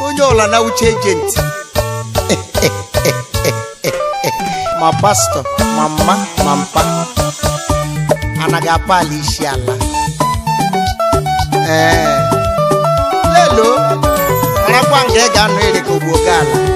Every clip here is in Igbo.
onye ọla na uche ejenti ma pastọ ma mma ma mpa anaghị akpa ala isi ala ee lelo marakwa nga ga-anụ ere ka ala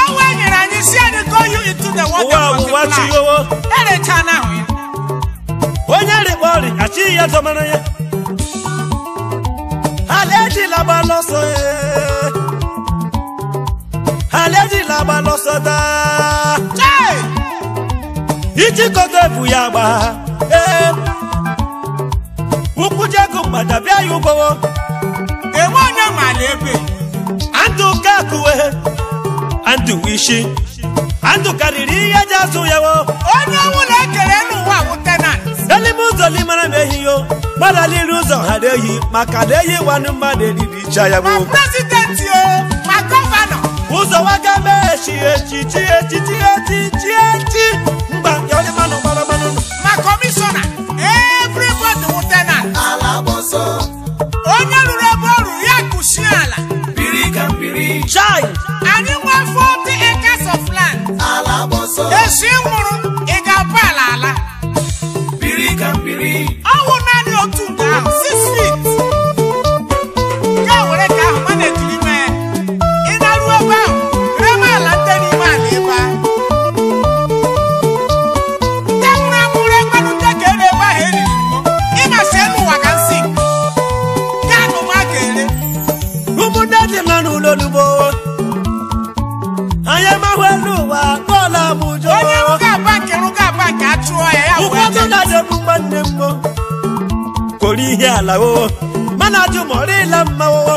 will share and go you into the water. Wow, what you want? Any channel. When you're the body, I see you as a man. Àlejì la bá lọ sọ ẹ́. Àlejì la bá lọ sọ tá. Ìjì kọ́tọ̀ ìfúyà gbà. Ukwu jẹ́kù gbàdàbí ayé ugbọ́wọ́. Èwọ́n náà mà lè bè. Àǹtù kẹ́kùwé. Àǹtù wíṣí. ndụ karịrị ihe ji azụ ya wo onye ọnwụ na-ekere n'ụwa wụ tenant elime ụzọ limara na ehiyo gbaraliri ụzọ ghara ehi maka na eyi nwanne mmadụ eriri icha ya wo ma prezidenti ma gọvanọ ụzọ waga mee echi echichi echichi Brasil! ọdịnala oo mana ajụmọrịla mma oo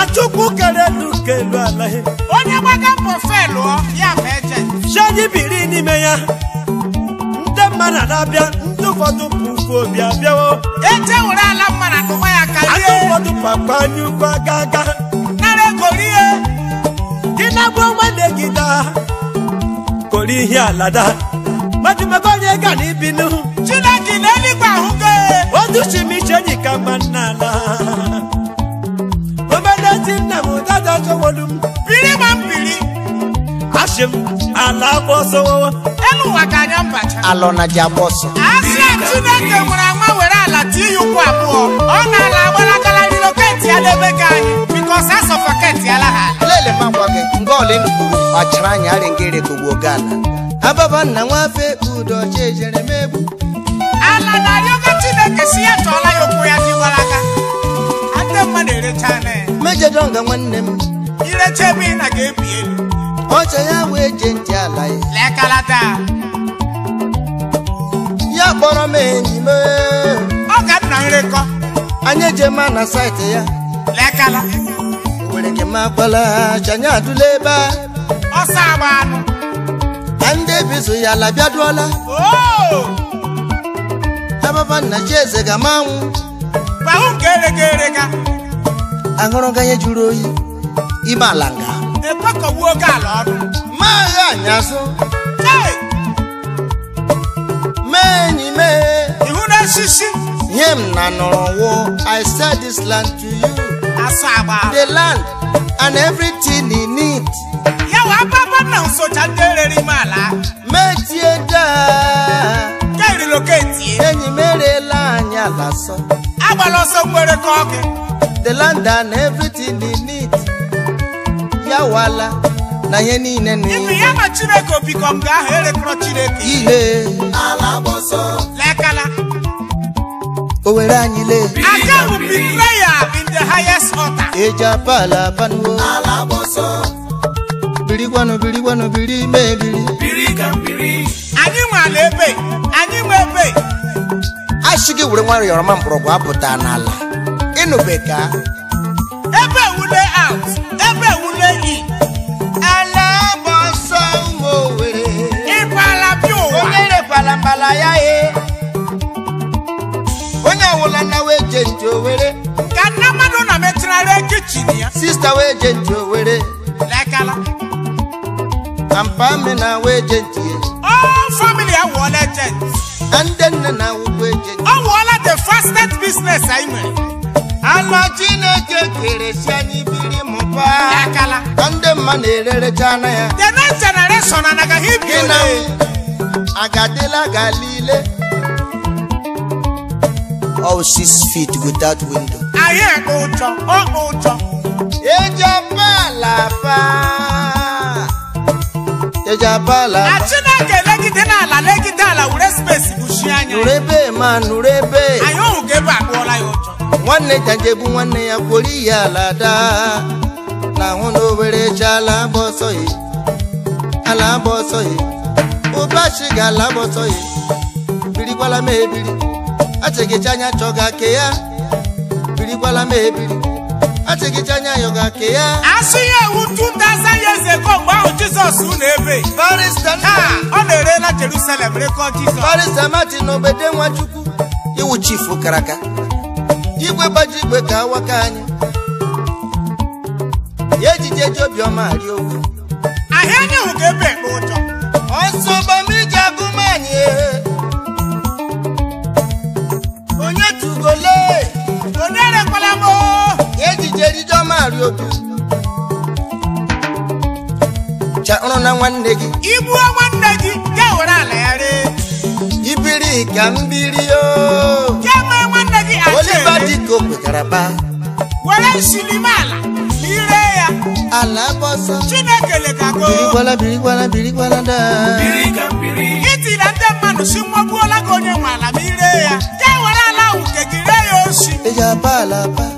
achukwu kere elu ka elu alaghị onye gbaga mbọ ọ, ya ma eje biri n'ime ya ndị mma na abịa ndị ụfọdụ pụkwu obi abịawo eje were ala mma na tụwa ya karịa. ndị papa anyị nara ego rie gị na-agba kori ihe alada majimago onye ga na chineke na educhimiche enyi ka mma n'ala obedeti nna m dada towolu m biri ma m biri achị m ala agba ọsọ elu ụwa ka anya mbacha alọ na ji agba ọsọ asị a chineke nwere agba were ala tie ya ụkwụ abụọ ọ na ala agbalagala riloketi ya n'ebe ka anyị bikọs asọ faketi ala ha lele ma gwa gị mgbe ọlịnkwuru ọchịrị anyị arị ngere kogbo gana ababa nna nwafe udo chejere mebu ala na yoga esi ya tụọla ya ụkwụ ya dị gbara aka ndị mmadụ erechala ya mejọdọnga nwanne m irecha ebe ị na ga-ebi elu ọcha ya wee je ntị ala ya lekalata ya kpọrọ m enyi m ọ ka nna nrekọ anyị eje ma na saịtị ya lekala were gị ma kpala chanye adụla ebe a ọsọ agba anụ ndị ebizu ya labịa labiaduola tababa e na chieze ga manwụ ahụ nke erega erega aṅụrụganye jụrụ oyi ime ala nga ekwekọgbu oke ala ọrụ maa ya anyazụ mee enyi mee ihu n'osisi nye m na wụ. i sell this land to you the land and everything in it ya wa ababa na nsocha ndị erere ime ala metie daa relocate enyi m erela anyị ala sọ agbala ọsọ mgbere ka the land and everything he needs ya wala na ihe niile na ibe ya ma chineke obikọ m ga-ahụ erekọrọ chineke ihe ala gbọsọ lekala o were anyị lee aka bụ prayer in the highest order eji pala ala abanuo ala gbọsọ biri gwanu biri gwanu biri mee biri biri ka biri anyị nwe ala ebe anyị nwe ebe asị gị were nwayọrọ yọrọma mgbọrọgwụ apụta n'ala ịnụbe ka ebe wule out ebe wule in ala bụ ọsọ ụmụ owere ịpala bi ụwa onye rekwala mbala ya e onye ọwụla nna wee nje owere ka nna mmadụ na metụnarị kichin ya sista wee je nje owere Kampa me na we agent ye. All family are one agent. And then na we go agent. Oh, wala the fastest business I mean. Ano Chineke kere si anyi biri mụba. Yakala. Ndị mma na-ererecha anya ya. The next generation anaga hibiri. Gị na agadịla galile. All six feet without window. aye ekpe ụjọ, ọ ụjọ. Eji ọpa ala jejapala chineke legide n'ala legide ala were spesi buchie anya nurebe ma nurebe anyị ọhụrụ ka ebe akpụọla ya ụjọ nwanne janjebu nwanne ya kwori ihe ala daa na ahụ na owere cha ala agba ọsọ ala agba ọsọ ya ụbachi ga ala agba ọsọ ya birikwala m ebiri achịgịcha anya chọga ke ya birikwala m ebiri achịkịcha anya ya ga ke ya asị ya ewu 2000 years ago mgbe ahụ jizọs na ebe ọ na-erela jerusalem rekọ jizọs barista martin na obede nwachukwu iwu chifu karaka igwe gbaji igwe ka awaka anyị ya ejije ji obiọma arị owu ahịa anyị hụ ga ebe ekpe ụjọ ọsọ bamiji agụmanyị na-arị obi chakụrụ na nwanne gị igbuo nwanne gị ya were ala ya ree ibiri ka mbiri oliva dịka kwekara ba were nsilimala ire ya ala gbọsọ chineke lekago birikwala birikwala birikwala daa itira ndị mmadụ si mmọgbuola gị onye nwe ala ma ire ya ya were ala ahụ nke gị ree ya osi eji apa ala apa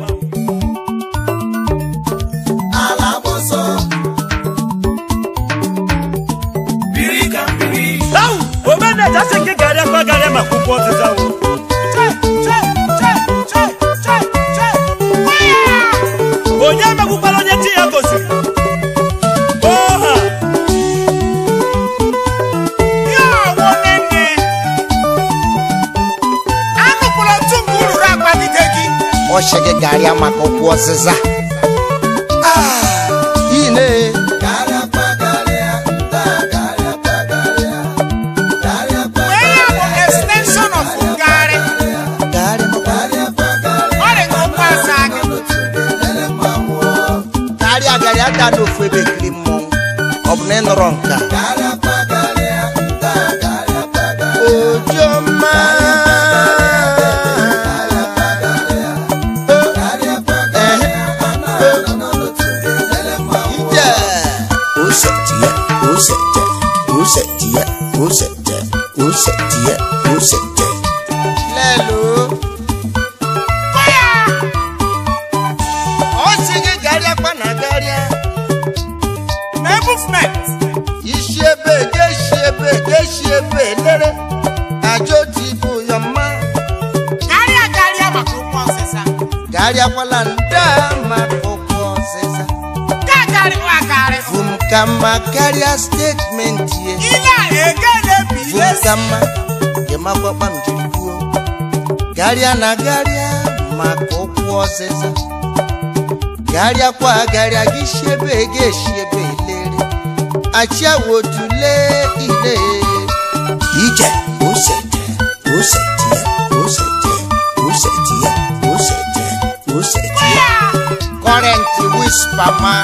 A asị gị garịa kwa garịa maka ụkwụ ọzịza onye megbukwara onye chi ya gosiri oha ya nwanne nne anụpụrụ ntu mgbe uru akpa dide gị ọ sị gị garịa maka ụkwụ ọzịza kpọrọ gharịa gharịakwa agharịa gị shiebe gị eshiebe lere achịawo tule ile ije ose je ose tie ose je ose tie ose je ose wispa ma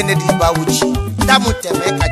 Kennedy Bawuchi Ndamu Temeka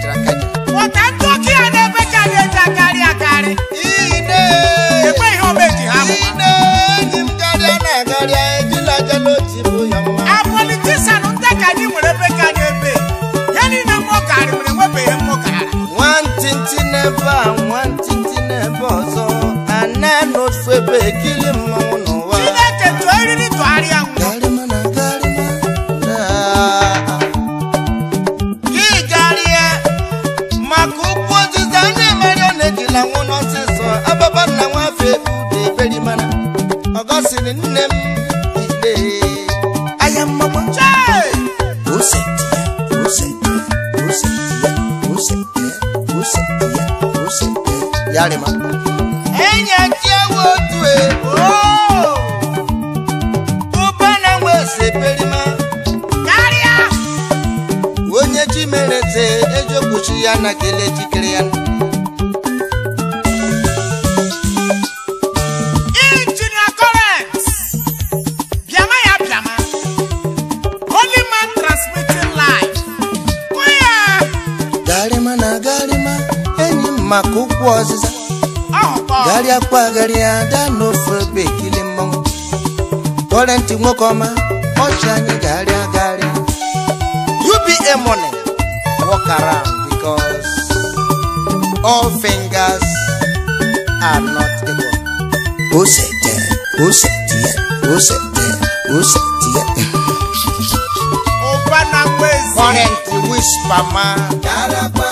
ada n'ofe ogbe ekili mmọnwụ tọrọ ntị nwoke ọma ọchị anyị ga money walk around because all fingers are not equal ose tie ose tie ose tie ose tie ụba na mgbezi kọrentị wispa ma garakwa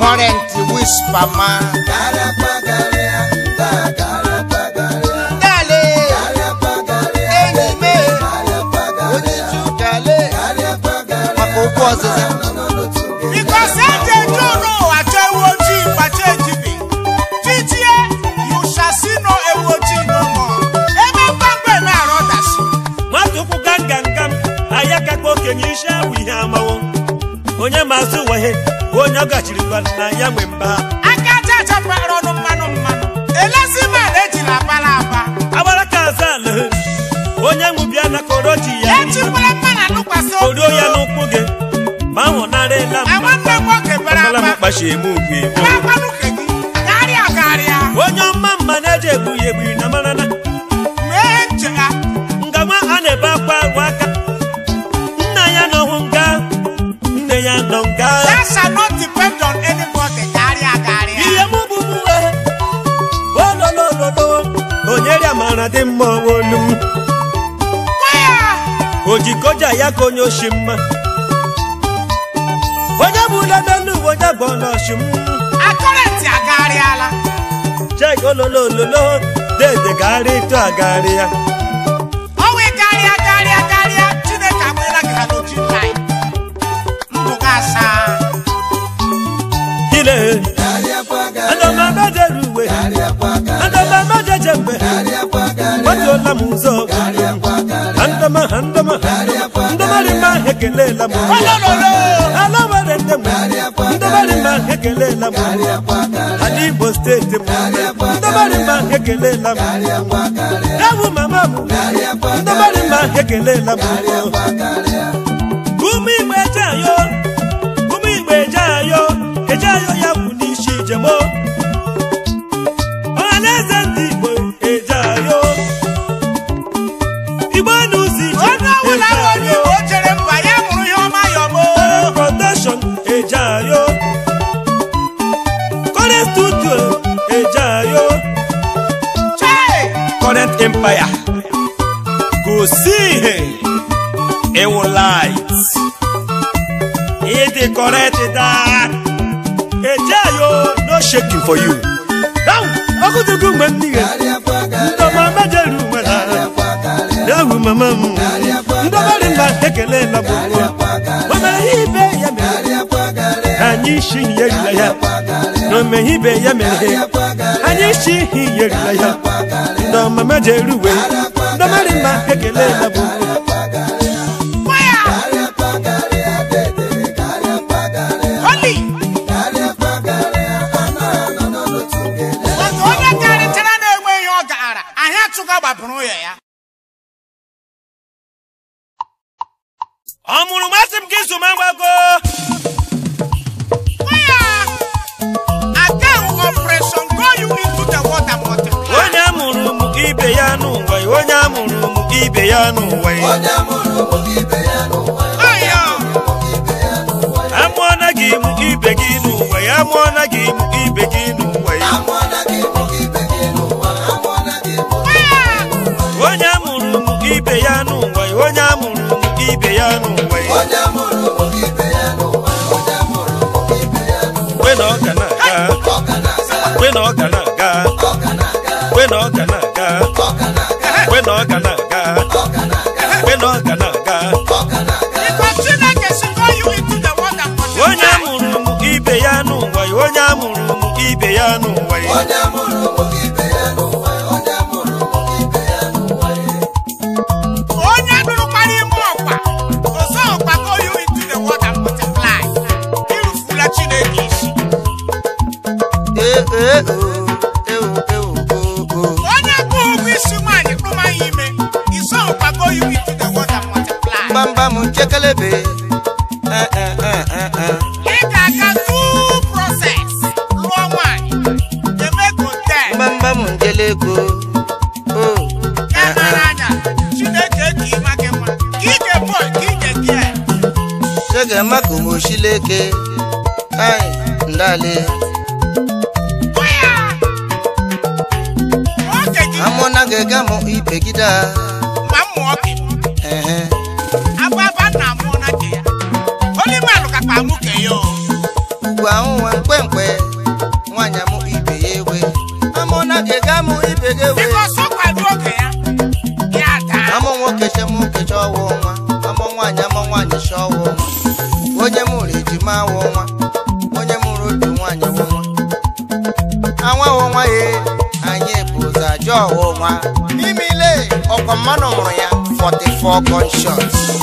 houses. whisper man. onye ọ gachiri na ya nwe mba aka aja aja kpara ọnụ mmanụ mmanụ elezi mmadụ ejila abala aba agbara ka azan onye nwe bịa na koro ji ya echikwala mma na lụkwasị koro ya n'ụkwụ gị ma nwụnarịla mkpachigbu onye ọma mma na-eji egbughi egbughi na marana ngama a na-ebe akwa agwa aka nna ya nọhụ nga nne ya nọ nga na olu m ojikoja ya ka onye oshi mma onye bụ n'elu uwe onye bụ ọnọchi m akọrịntị agagharịala chek ololo ololo dede gagharị etu agagharị ya ọnwa garịa garịa garịa chineke agbaela gị ha n'oju nnaanyị ile m m agbajuola m ụzọ handama handama ndịmarịma ekelela m ala were nne m ndịmarịma ekelela m ala Igbo steeti m ndịmarịma ekelela m ewu mama m mma ya gosi ihe ịwụ light ịdị correct ah. ejeyo no for you ọkụtugu mgbe m n'ihe ndọma mejeru nwere ewu mama m ndọbarị mba ekele labụ o ihe ibe ya mere anyị isi ya ya na omeghibe ya mere anyị isi ihe yerila ya ndị ọmama ji eruwe ndị mmadụ mma ekele ya bụ ọ mụrụ masị m gị zụma ibe ya n'ụwa onye amụrụ m gị ibe ya n'ụwa amụọna gị m gị ibe gị n'ụwa ya amụọna gị m ibe gị n'ụwa ya onye amụrụ m ibe ya n'ụwa onye amụrụ m ibe ya n'ụwa ya na ọ ga na-aga ọ ga na-aga ọka aga mgbe na ọka aga onye amụrụ m ibe ya n'ụwa onye amụrụ m ibe ya n'ụwa chekelebe eh, eh, eh, ị ga-aga through process lụọ oh. ndale amụna ga-ega m 44 gunshots.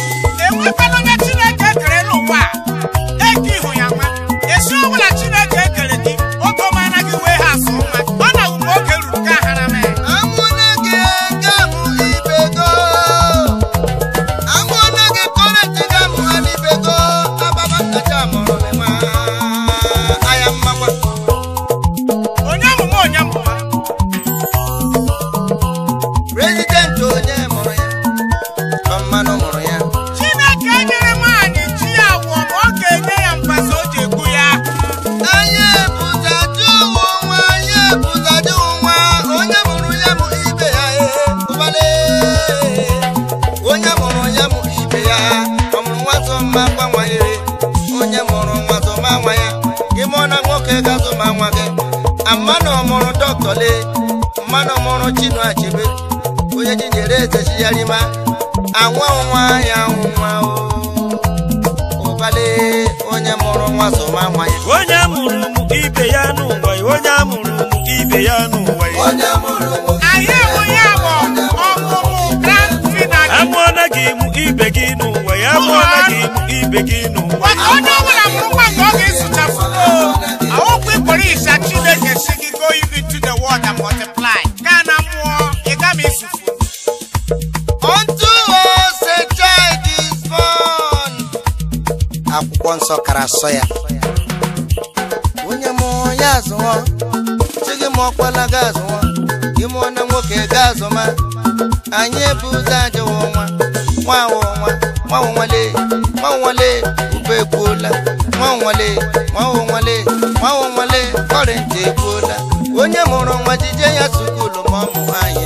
ma nwa ya gị mụọ na nwoke ga-azụ ma nwa gị amanụ ọmụrụ dọkịta mmanụ ọmụrụ chinua onye ji nyere eze chiyarima anwa nwa ya nwa ụbale onye mụrụ nwa so ma nwa ya onye mụrụ ibe ya onye mụrụ mụọ na gị mụ ibe gị n'ụwa ya mụọ na gị mụ ibe gị n'ụwa onye ọbụla mụrụ nwa nke ọ ga-esuchafugo ahụkwa ịkpọrọ isa chineke si gị go to the world and multiply gaa na mmụọ ị gama isufu akwụkwọ nsọ kara asọ ya onye mụọ ya azụọ chi gị mụọ kpala ga azụọ gị mụọ na nwoke ga azụma anyị bụ ụzọ ajọwọnwa nwanwọnwa nwanwọnwale nwanwọnwale ube ekwuola nwanwọnwale nwanwọnwale nwanwọnwale kọrịntị ekwuola onye mụrụ nwa jije ya sukulu ma ọ mụ nwaanyị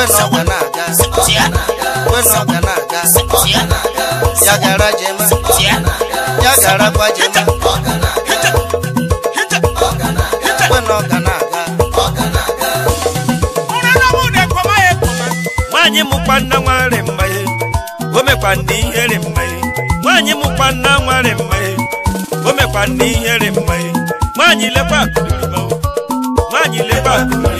wesa na-aga wesa na-aga ya gara jema ya gara kwa jema mụkwa nna nwarị mmanye o mekwa ndị ihere mmanye nwaanyị mụkwa nna nwarị mmanye o mekwa ndị ihere mmanye nwaanyị lekwa akụrịrịma nwaanyị lekwa akụrịrịma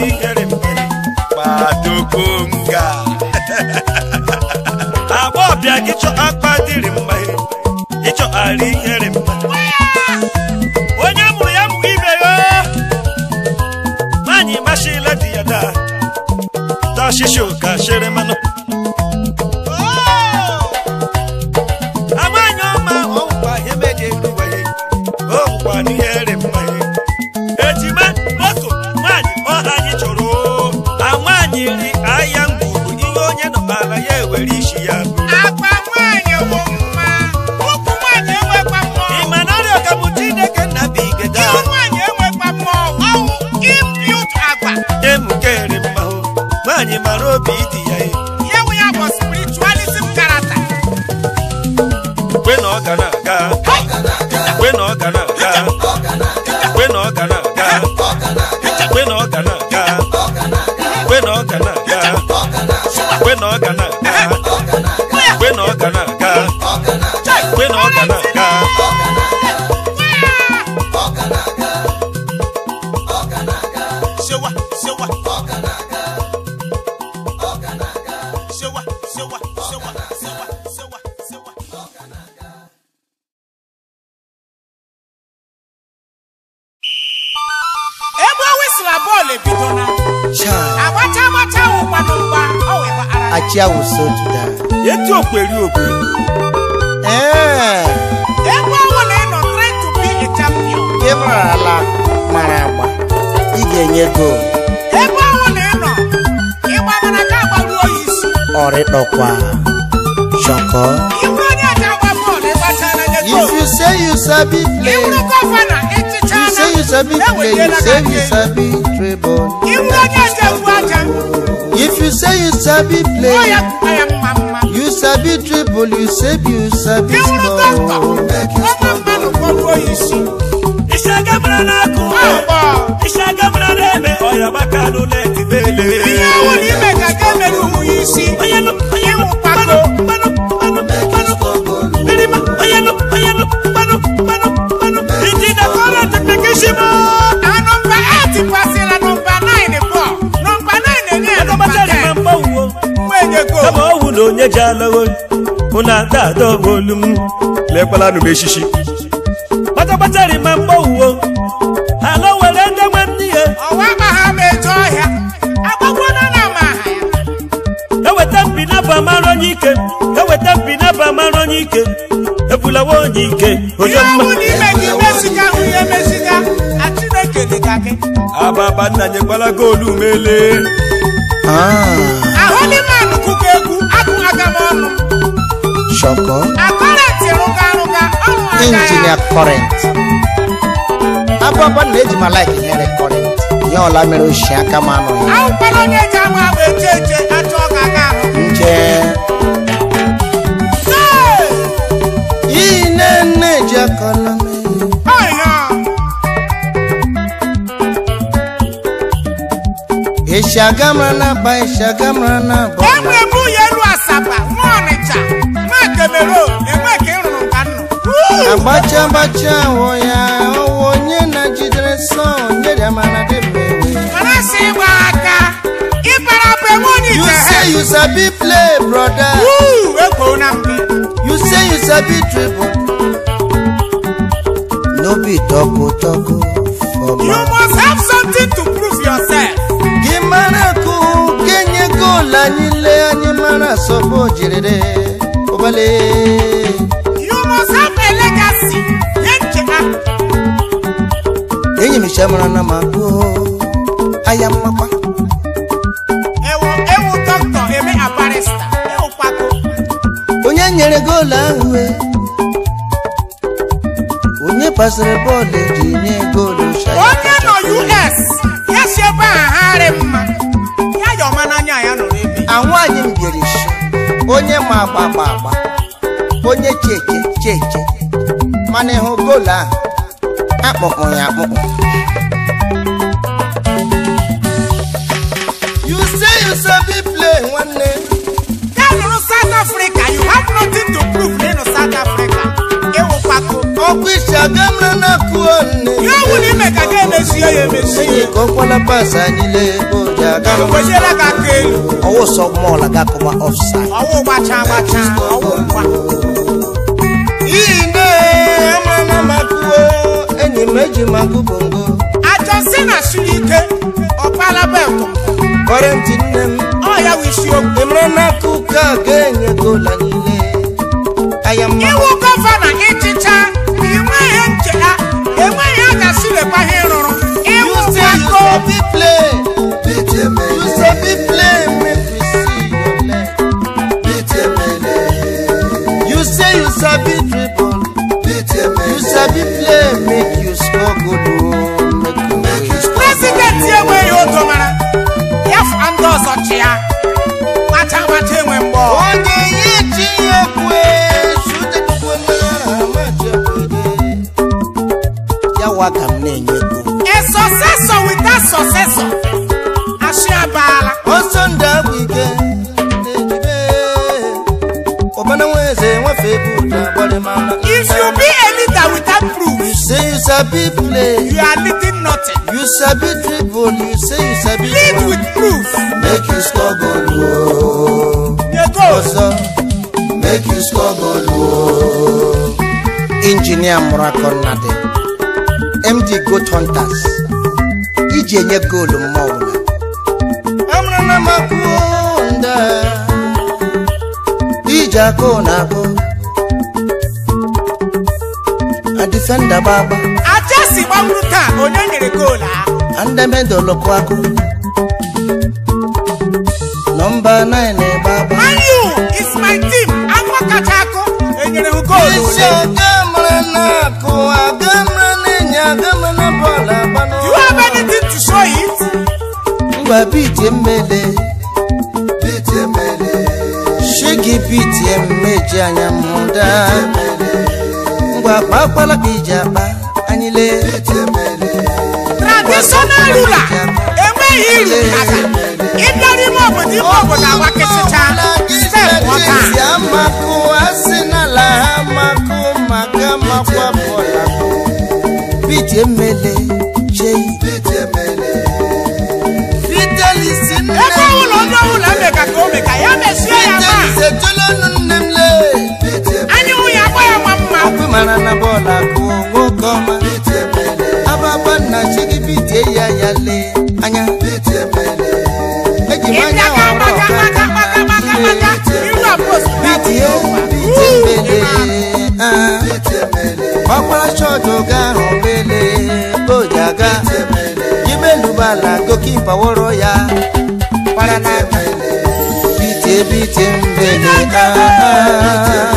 n'ikere mgbere kpadokonga agbọbịa gị chọ akpa dịrị mma ịchọ ọrịdọkwa chọkọ if you say you sabi play you say you sabi play you say you sabi dribble if you say you sabi play you sabi dribble you say you sabi score make score. náà kò wá iṣẹ́ náà ẹ̀mẹ́ ọ̀yọ́ bá kánú lẹ́ẹ̀tì bẹ́ẹ̀ lé. ìyá wo onye ji alagho unu ada ada ọbụ olu m lekwala nụ m echichi onye ike ebulawa onye ike onye mma ababa nna nyekwala goolu mele ahụdịmanụ kụkọ egwu agụghị m ọnụ shọkọ akọrentị rụga rụga ọnụ aka ya injinia kọrent ababa nna eji ma laik nyere kọrent ya ọla mere ochie aka m anụghị ahụkwala onye eji ama agba eche eche achọ ọ ga-aga ahụ ya kalame. Eshagamrana ba eshagamrana ba. Ẹ̀mú ẹ̀bú yẹlu àsàbà wọn ọ̀nìjà máa kẹmẹ̀rọ ẹ̀mú ẹ̀kẹ́ ìrùnà kánú. Agbacha agbacha wọ ya ọwọ onye na jidere sọọ nye dị amara dị mmewe. Mana si gba aka ịbara bụ ewu onye ije ha. You say you sabi play brother. Wuu! You say you sabi dribble no be tọkọtọkọ for you must have something to prove yourself. kì í mara kú kéye góòlà nílé ẹni mara sọ you must have a legacy. èyí mi ṣe mara náà máa kú ó aya máa pa. ewu ewu dókítà èmi pako. onye nyere góòlù ahụ. E. kwesịrị bọọlụ eji nye goolu onye nọ US ya si ebe a harị mma ya yọ ọma anya ya nọrọ ebe anwụ anyị m onye ma agba agba agba onye cheche cheke mana ịhụ goolu ahụ akpọkpọ ya akpọkpọ ọkwa isi na akụonne ọ ka ga ya ya emesi anyị ji aga kwesiela ka aka ọwụ na makụo na ọ ya ga-enye gola niile gọvanọ sabi play make you score good oh, goal make you score. president enwe ya oto mara ya fa ndị ọzọ chịa macha macha enwe mgbọ. onye ihe chi ya ekwe sute tupu mmanya na amaja wede ya wa ka m na-enye ego. a successor with a successor asị abaala. ọsọ ndị agwụ ike na-ejibe ọbana nwa eze nwefe bụ na-agbalị mama sabi play you are leading nothing you sabi dribble you say you sabi lead run. with proof make you struggle, goal ooo ọsọ make you struggle, goal oh. Engineer injinia murakọ md goat hunters iji e enye goolu mma ọbụla. amụrụ na m akwụọ nda iji e akụ na akụ a defender gbagba. si gbagburu taa onye nyere goolu ahụ andemedolokwago nọmba 9 ebe agba ayu is my team afọ kacha akụ enyere m goolu you have anything to show it ngwa biti mmele biti mmele shigi biti mmeji anya mụda ngwa ka iji emele traditional ruler enweghị iri aka ịbịa n'ime obodo ime obodo agwa kịtịcha ndị ka ya ma anyị nwunye agba ya ma mma na chi gị ah, ya ya lee anya eji m anya bitie bitie ọkpara chọọchị oge ahụ mele oji aga imelubala gokipa wọrọ ya bitie bitie mbele aa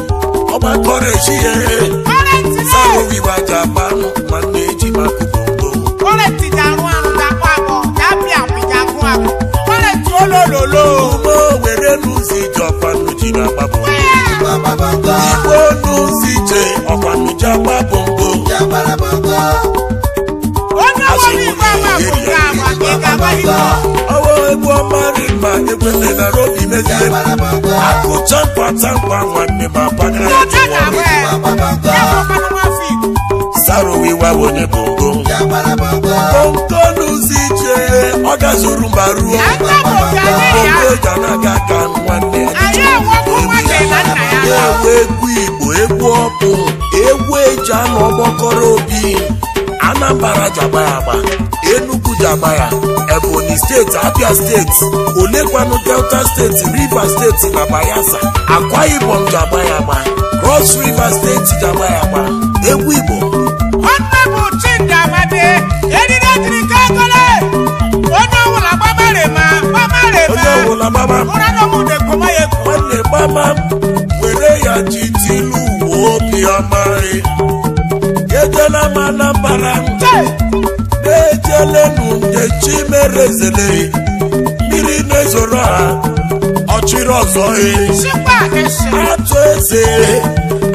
makore chie saro vibaja pamo magneji makubongo kore ti darun arun dapo abo yabi àwọn jagun abo kore ti olololo mo were nu si jopanu jina pabo iwo nu si je opanu japa bongo ó ní ní ìgbà máa ká àwọn àgbẹ̀ká wáyé náà. egwu ọma rima ekweebara obi mezi akụcha mkpatamkpa nwanne ma sarowiwaonye bongo n'ụzọ ije ọ gazuru mba ruo ogana ka nwanne egwu Igbo egwu ọkụ egwu eji anụ ọgbakọrọ obi anambra ji agba ya agba enugu ji ya ebonyi steeti abia steeti olekwanụ delta steeti rivers steeti na bayelsa akwa ibom ji agba ya agba cross river steeti ji agba ya egwu igbo nwanne bụ chidi amadi eriri ejiri ka agole onye ọwụla gbamarema Anambra na-ejelenu nkechimerezele mmiri na-ezoro ha ọchịrị ọzọ e. atụ eze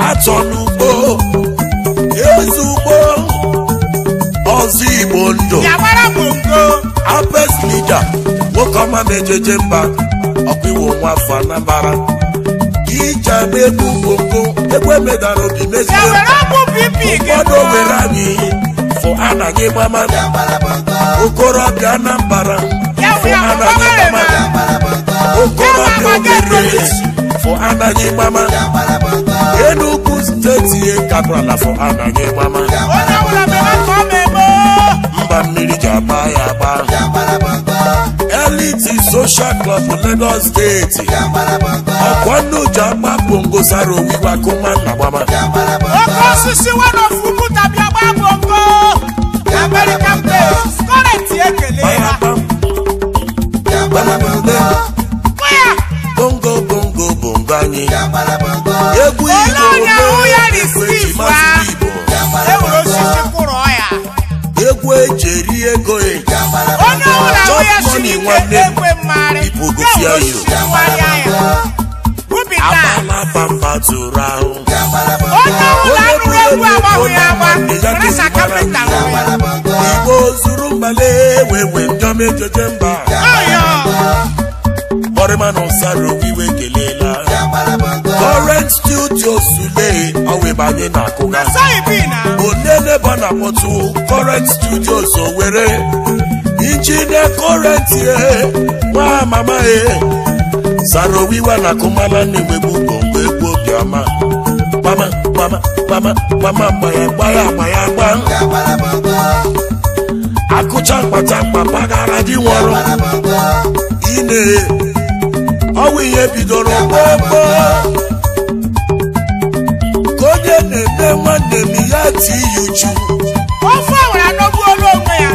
atọ n'ugbo eze ugbo ọzọ igbo ndụ apes nwoke ọma na-ejeje mba ọkpụiwo nwa afọ Anambra ije na-egbu egbe medara obi meziri ụfọdụ owere anyị fụ anaghị gbama okorobịa anambara fụ anaghị gbama okorobịa obere fụ anaghị gbama enugwu steeti e kabrala fụ anaghị gbama mba mmiri ji agba ya agba Fidelity social club Lagos state ọ̀pọ̀ nùjà má bongo sáró wíwá kó má nà mama. ọkọ sisi wọn ò fún kú tàbí ọgbà bongo amẹ́ríkà pé kọ́rẹ́ǹtì èkélé wa. bongo bongo bongo anyi egwu igbo eri ego e. onye ọbụla ahụ ya siri ike ekwe mmarị abapapa ya. ahụ onye ọbụla anụrụ egwu agbanwe ya agba rasa kapịta igbo zuru mbale mba ọrịma ụsara iwe kele Current studio Sule ọwịbanye na akụga onene ba na mọtụ current studio Owerri injinia current ye eh, nwa mama ye eh. sara owiwa na akụmala na-emegbu mgbe egbu bịa gbama gbama gbama gbama gbaya gbaya gbaya akụcha mkpata mkpa dị nwọrọ ine ọwụ ihe bidoro gbogbo ka onye na-eme nwanne m ya ti ya uchu ofe ọwara n'ogbu olu onwe ya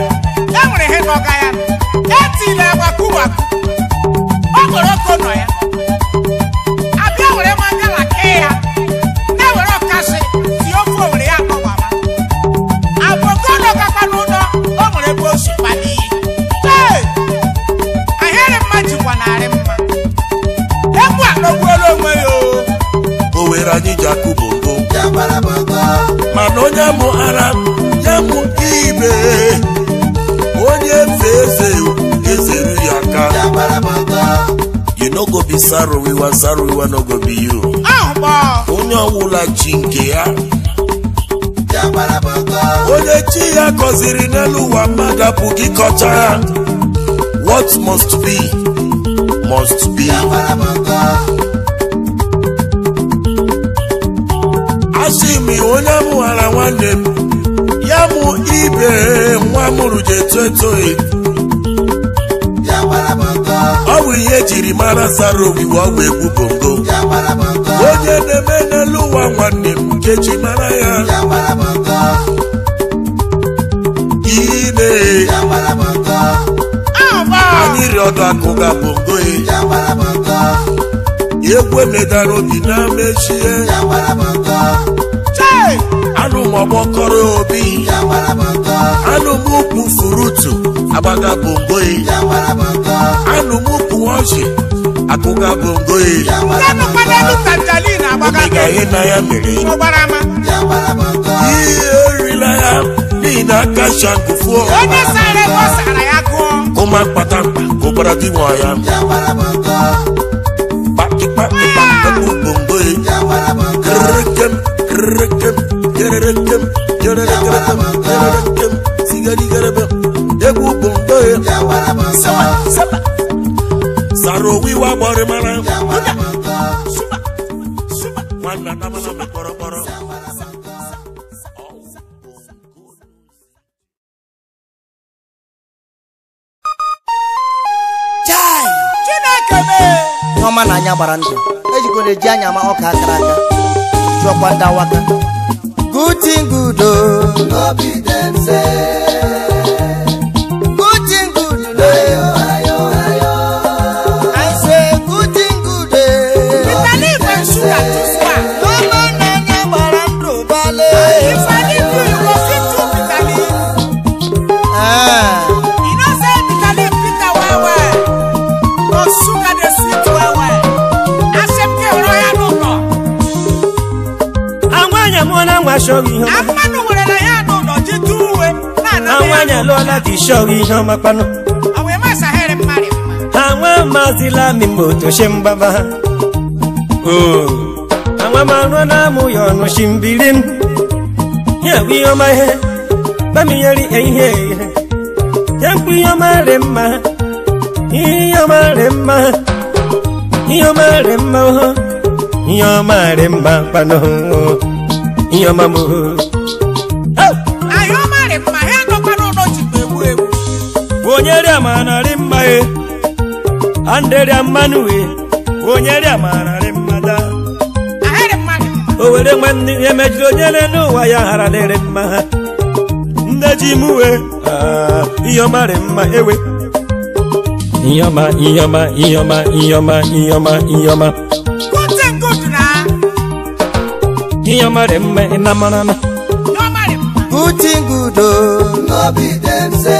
ya e nwere ihe n'ọga ya e ya tiri agba kuwa ọ gwara ya onye bụ ara ya bụ ibe onye eze eze ezere ya aka you no go be sarowiwa sarowiwa no go be you onye ọwụla chi nke ya onye chi ya gọziri n'elu ụwa mmadụ apụghị kọcha ya what must be must be gosi m onye mụghara nwanne m ya mụ ibe nwa mụrụ ji eto eto ọ bụ ihe ejiri mara sara ogige ọgwụ egwu bongo onye na-eme n'elu ụwa nwanne m nkeji mara ya ine anyị rịọdụ ọdụ akụ ga bongo e. ekwe medara obi na mechie anụ m ọgbọkọrọ obi anụ m ukwu furutu agbaga bongoyi anụ m ukwu ọchị akụga bongoyi ihe na ya mere ihe erila ya n'ihi na aka shankufuo kụma ụbara dị nwa ya ikpe mbomboe kerekem kerekem kerekem kerekem kerekem sigarigarebe egwu bomboe sara owiwe agbọrịmara nwanna namana anya gbara ndụ ejikwana eji anya ama ọka akara aka chụọkwa ndị awaka good thing akpanu nwere na ya nọ n'ọchịchị uwe anwanye lụọla dị shọrọ ihe ọma kpanụ ha nwa mazila mimba otoche mgbaba ha anwa marụ na amụ ya ọnụ shi mbili m ya bụ ihe ọma ihe bamiyeri ihe ihe ya mkpụ ihe ọma rị mma ihe ọma rị mma ihe ọma rị mma ihe ọma rị mma kpanụ ihe oh, ọma m anyị ọma mma ha nọkwara ụlọ jikwa egbu egbu onye rịa ma narị mma ye anderịa mmanụ we onye rịa ma narị mmada o were nwanne ihe onye n'ụwa ya hara dịrị mma ha nne ji m we ah, ihe ọma rị mma ewe ihe ọma ihe ọma ihe ọma ihe ọma ihe ọma ihe ya mara mme na mara na uti ngudo n'obi dị mse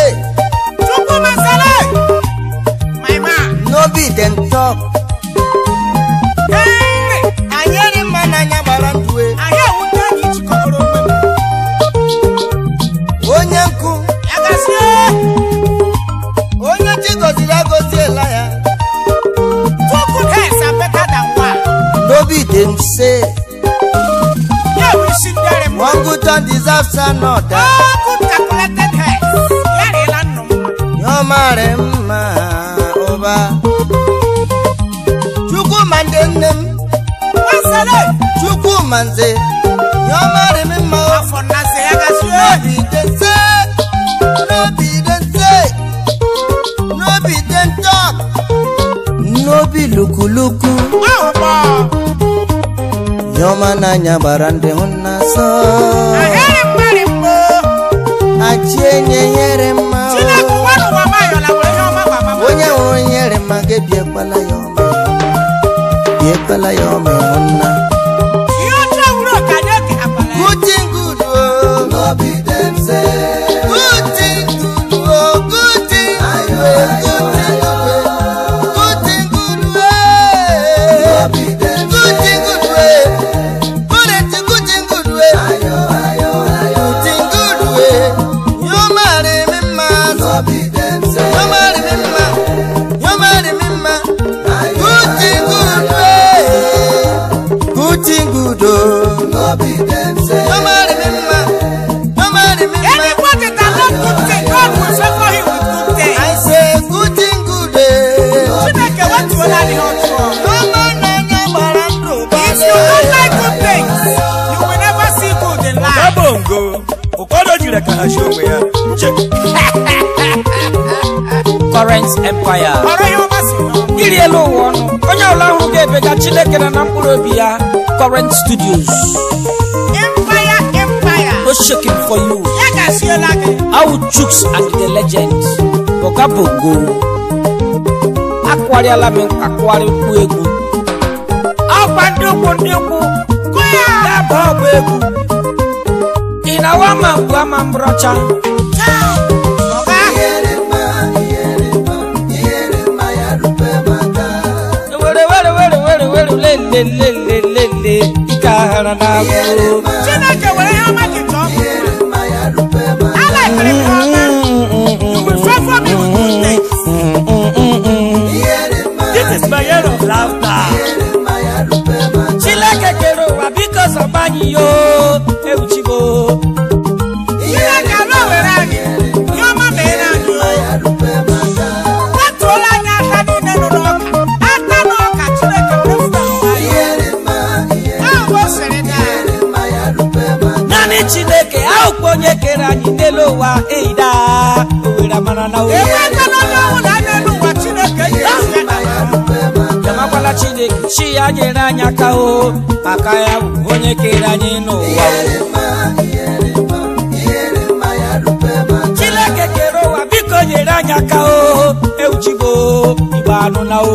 manze your man me mo for na say I n'obi dị n'obi dị n'obi say no dị den say no be den talk nye nyere mma onye hụrụ nyere mma gị bịakwala ya ọma bịakwala ya ọma nna nkwa ya ọrụ ya ọmasị elu ụwa onye ebe ga chineke na na obi ya current studios empire empire no shaking for you ya chooks and the Legends. boga bogo akwarịala m nkwa kwarị mkpu egwu ọkwa ndị ukwu ya. ya ndị ma na n'agụ chineke were chineke chi ya nyere anyị aka o maka ya bụ onye kere anyị n'ụwa chineke kere ụwa biko nyere anyị aka o ewuchigo igbe anụ na o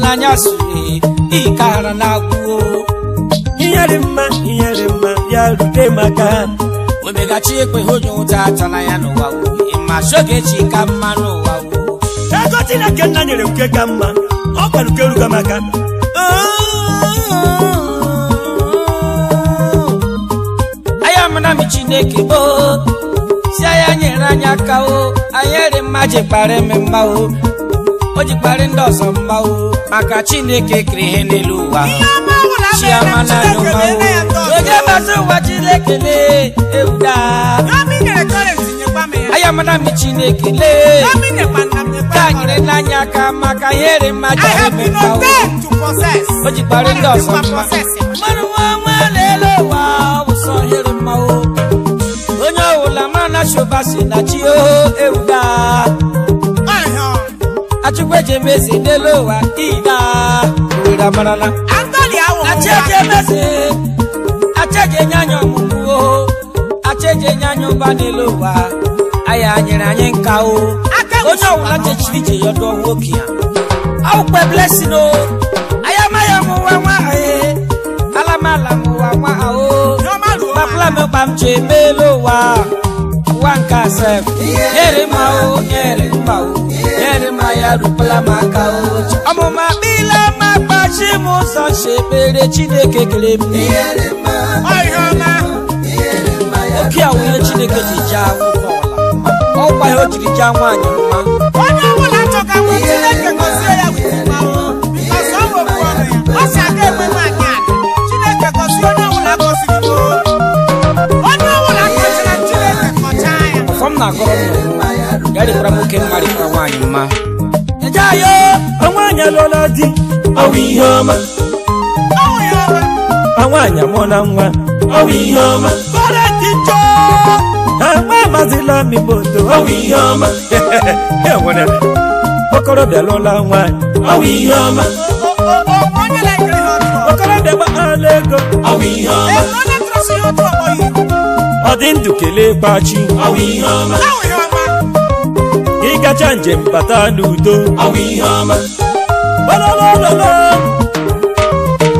n'anya sụrụ ịkara ara na-agwụo ihe mma ihe mma ya rute maka omegachi ekwe onye ụta atala ya n'ụwa ma sogechi ka mma n'ụwa ego Chineke nna nyere nke ka mma ọ uke ukeruga maka aya mana m Chineke gboo si anya nyere anyị aka o anyị dị mma ji kpara mma o o ji kpari ndị ọzọ mma o maka chineke kere ihe n'elu ụwa chiama naanị ụwa o ege bata ụwa chineke lee ewuda ayamana mi chineke lee ka nyere n'anya aka maka ihere mmaja emeka o o ji kpari ndị ọzọ mma mmanụ nwa nwa n'elu ụwa ọ bụ sọ ihere mma o onye ọwụla ma na chụba si na chi o ewuda chukwu eji eme eze n'elu ụwa ina owere amarala achaji emeze achaji enye anya ọmụmụ achaji enye anya ụba n'elu ụwa aya anyị o onye aya m ji wanka sef nyere ma o nyere ma o nyere ma ya rupala m aka o ọmụ ma bila ma kpachi m ụzọ chebere chineke kele m ọhịa ọma oki awụnye chineke ji je akwụkwọ ọla ọgwa ya o jiri jaa nwaanyị mma onye ọbụla chọka nwa chineke gozie ya bụ mmanwụ ọsọ ọ bụ ọrụ ya m na-agọrọ ya dịkwara nwoke mma dịkwara nwaanyị mma ejeayo ọnwa anyị alụọla di ọwụ ihe ọma nwaanyị amụọla nwa ọwụ ihe ọma nwa amazila mimoto ọwụ ihe ọma okorobịa lụọla nwaanyị ọwụ ihe ọma okorobịa gbaala ego ọwụ ihe ọma ọ dị ndụ kelee kpachi gacha njem bata n'udo ololololo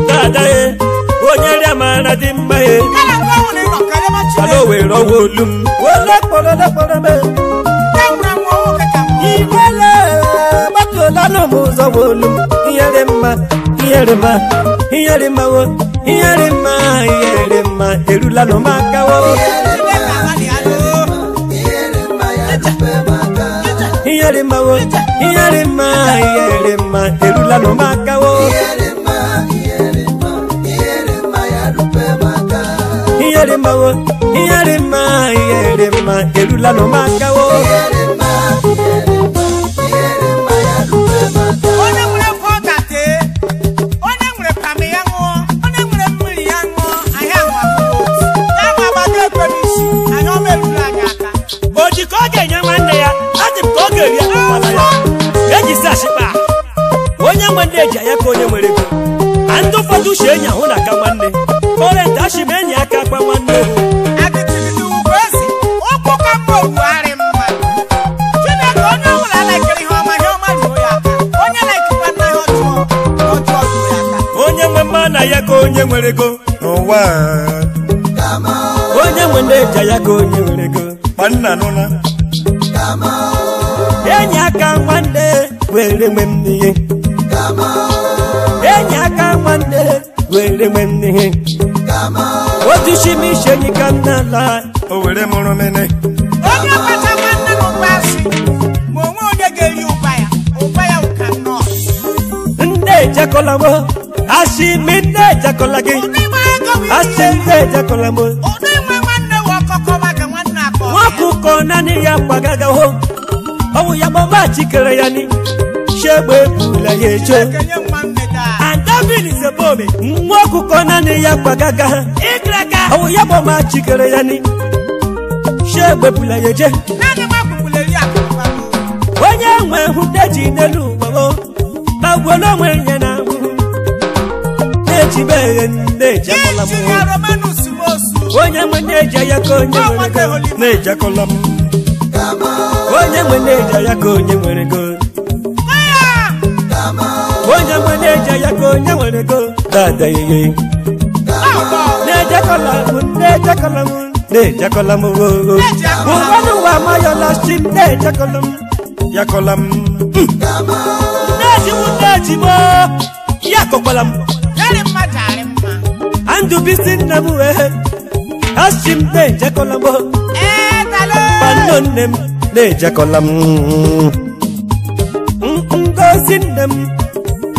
dadae onye rịa mara dị mma ala nwere ọwa olu m olekpololekpolobe iwele e. gbatuola n'ụmụ ụzọ olu m yẹlẹma iyẹlẹma wo iyẹlẹma iyẹlẹma èrú lànà máa káwọ́. iyẹlẹma wo iyẹlẹma iyẹlẹma èrú lànà máa káwọ́. iyẹlẹma wo iyẹlẹma iyẹlẹma èrú lànà máa káwọ́. iyẹlẹma iyẹlẹma. uche enyi ahụ na aka nwanne korent ashim enyi aka akpa nwanne onye nwe mma na ya ka onye nwere ego n'ụwa onye nwe ndị eja ya ka onye nwere ego kpanna nụna enyi aka nwanne were nwe m enyi aka nwanne were mwene otishi nisheni kanala owere mụrụ mene onye ọkpata nwanne m mgbasị ma onwe onye ga-eri ụba ya ụba ya ụka nọọs nne ejekola m asị mi nne ejekola gị asị nne ejekola m nwakụkọ naanị ya kwagaga ho ọnwụ ya mama chikere ya ni shegbe ebula ya eche nwa ọkụkọ naanị ya kwagaga ha ọwụ ya gbamachikere ya ni ya onye nwe hụteji n'elu ụgbao gbagbuola onwe ya na ahụhụ na-ejibe eghe onye nwe ya ka onye nwere go na-ejekọla m onye nwe na-eji ya ka onye nwere ego dada ihe na-ejekọla m na-ejekọla m na-ejekọla m oo oh, oh. ụwanụ wa amayọla m na-ejekọla m yakọla m na-ejiwu na-eji m ya kọkwala m andụbisi nna m wee m na-ejekọla m nne m na-ejekọla m ngozi nne m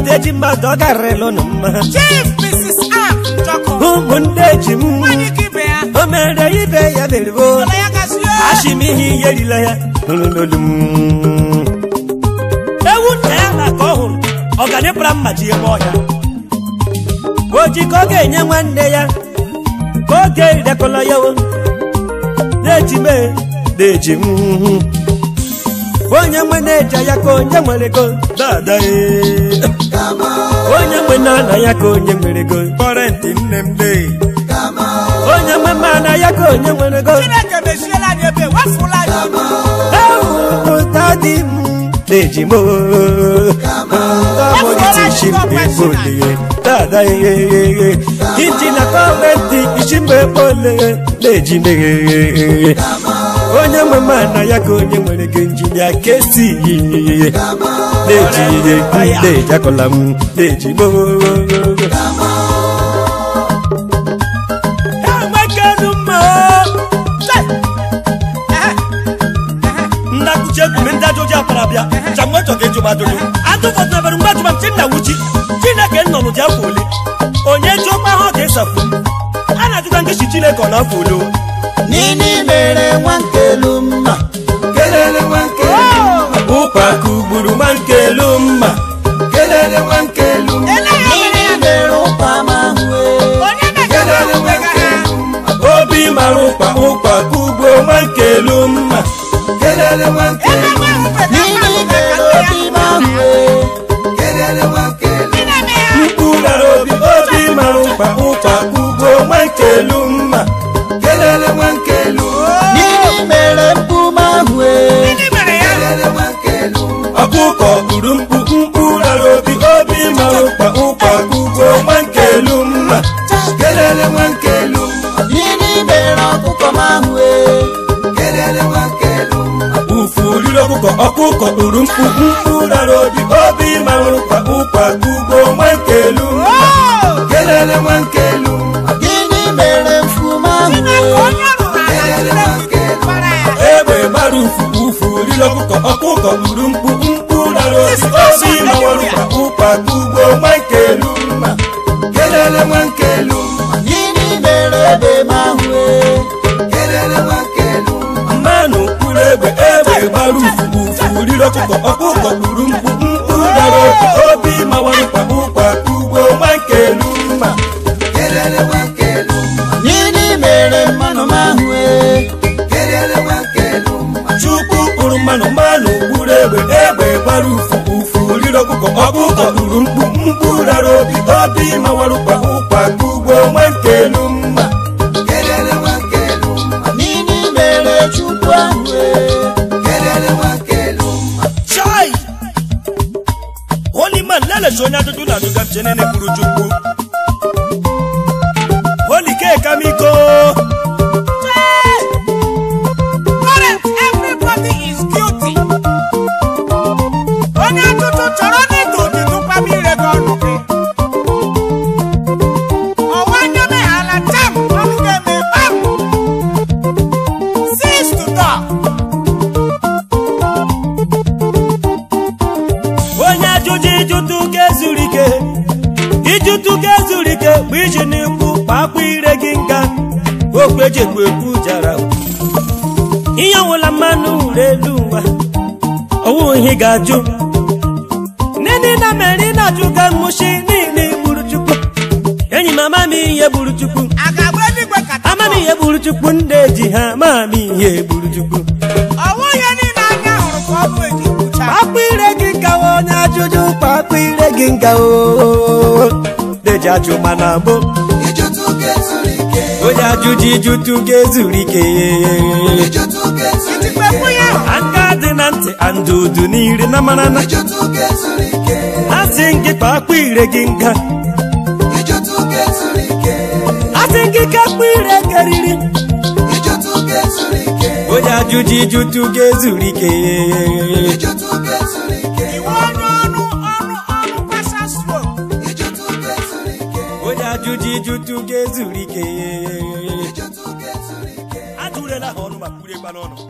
Ude ji mmadụ ọ garịrịlụ mma ụmụnne ji m o mere ibe ya beribo achịm ihe ihe erila ya n'olulu m ewu nna ya na ka ọ hụrụ ọganịpụra mmaji ebe ọhịa oji ka ọ ga-enye nwanne ya ka ọ ga ya na-eji na-eji m onye nwe na ya ka onye nwere ego dada e. onye nwe na ya ka onye nwere ego ntị nne m de onye nwe mana ya ka onye nwere ego ewuta m na-eji m tamụgịtị ichimbe kpolie dada e, e, iji na na-eji meghe onye nwe na ya ka onye nwere gị injinia kesi yiye na-eji ihe na-eji m na-eji na-ajụta chineke ọ na be my nga deji ajụ mana mụ onye ajụjụ ijutu ga-ezuru ike aka dị na ntị andudu n'iri na manana a sị gị kpa ire gị nga a sị gị ike. akpụ ire karịrị onye ajụjụ ijutu ga-ezuru ike ajụjụ ijutu ga-ezuru ike ajụrụla ha ọnụ ma kwuru n'ọnụ